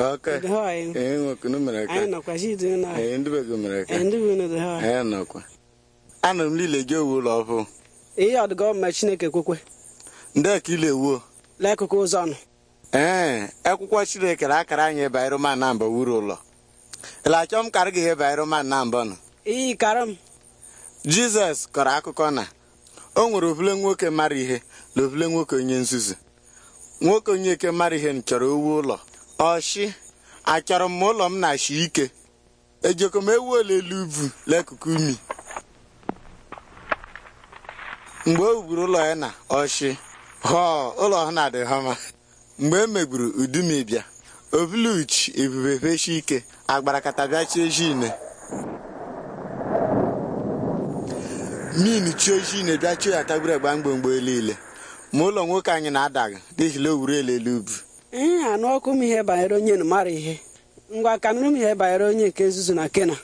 anụrụ m niile gị owu ụlọ ọhụụ ihe ọdụgọ ma chineke kwekwe ndị ka ile ewuo n'akụkụ ụzọ nụ. ee akwụkwọ chineke na akara anyị banyere ma na mba wuru ụlọ ele achọ m karị gị ihe banyere ma na mba nụ. iyi karị m jizọs kọrọ akụkọ na o nwere ovule nwoke mara ihe na ovule nwoke onye nzuzu nwoke onye eke mara ihe chọrọ owu ụlọ ọshị achọrọ m ụlọ m na achị ike ejoko m ewu olelu ubu n'akụkụ umi mgbe o wuburu ụlọ ya na ọshị họọ ụlọ ha na-adị ha mgbe e megburu udumibia obuluchi ebube feshi ike agbarakatabịachie jine min chiochine bịachio ya tagburu mgbe mgbomgbo niile ma ụlọ nwoke anyị na-adaghị n'ihi na o wuru ubu ihe anụ ọkụ m ihe banyere onye mara ihe ngwa ka nụrụ m ihe banyere onye nke nzuzu na kena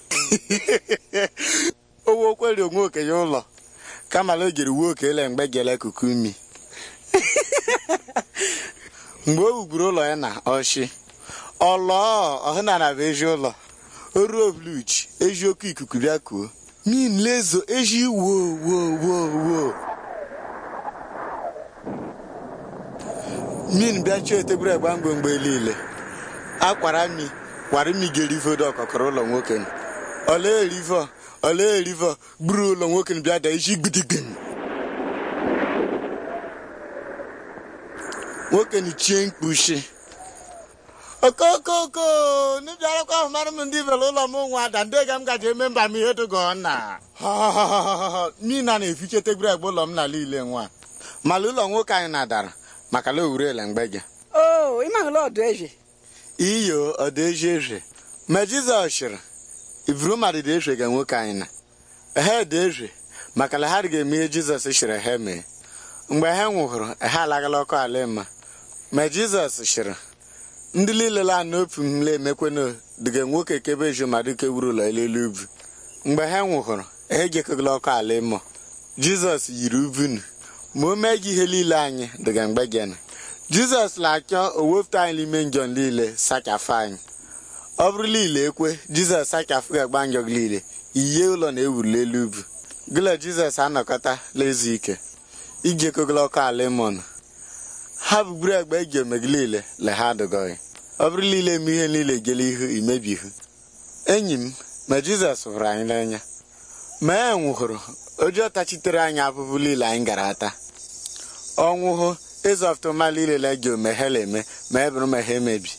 owe okweri onwe okenye ụlọ kamala o jere uwe okele mgbe gele kuku imi mgbe o wugburu ụlọ ya na ọchị ọlọọ ọhụnana bụ ezi ụlọ oruo ruo eji oke ikuku bịa kuo min lezo eji wo min bịachie tebụl egba mgbe mgbe niile akwara mi kwara mi ga-erivodo ọkọkọrọ ụlọ nwoke ole erivo ole erivo gburu ụlọ nwoke bịa da iji gbidigbim nwoke chie mkpuchi okokoko n'ibia ahụ mara m ndị bere ụlọ m nwa ada ndị ga m gaji eme mba m ihe dogo nna mina na-efiche tebụl egbe ụlọ m n'ala ile nwa mala ụlọ nwoke anyị na-adara maka la owurela mgbe gị o oh, ị mahụla ọdụ eze iyo ọdụ ezi eze ma jizọs chịrị ivuru dị eze ga nwoke anyị na Ehe dị eze maka na ha ga-eme ihe jizọs chịrị ha mee mgbe ha nwụhụrụ ha alaghala ọkụ ala ịma ma jizọs chịrị ndị niile la n'ofu mle emekwenụ dịga nwoke kebe ezi ma dịka e wuru ụlọ elelu ubi mgbe ha nwụhụrụ ha ejekọgala ọkụ ala ịmụ jizọs yiri ubunu ma o mee gị ihe niile anyị dịga mgbe gịnị jizọs na-achọ o anyị n'ime njọ niile sachafụ anyị ọ bụrụ niile ekwe jizọs sachafụ ga-agba njọ gị niile iye ụlọ na-ewuli elu ubu gịlọ jizọs anọkọta lezu ike iji ekogolo ọkụ a lemon ha bugburu egbe eji ome gị niile le ha adụgọghị ọ bụrụ niile eme ihe niile gele ihu imebihu enyi m ma jizọs hụrụ anyị n'anya ma e nwụhụrụ ojii ọtachitere anyị abụbụ niile anyị gara ata ọnwụhụ ịzọftụmala ilele gị omeghela eme ma e bụrụ ma ha emebi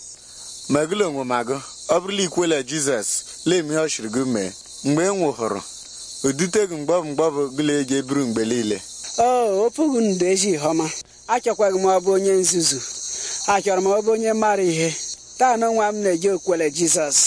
magụla onwe magụ ọ bụrụla ikwele jizọs lee m ihe ọ chịrị gị mee mgbe e nwụhụrụ udutegu mgbọbụ mgbọbụ gụla ego eburu mgbe niile o opụghị ndụ ezi ihe ọma achọkwaghị m ọbụ onye nzuzu achọrọ m ọbụ onye mara ihe taa na onwe m na-eji okwele jizọs